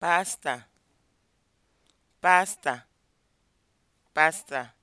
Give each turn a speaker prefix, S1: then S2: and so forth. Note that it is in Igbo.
S1: pasta pasta pasta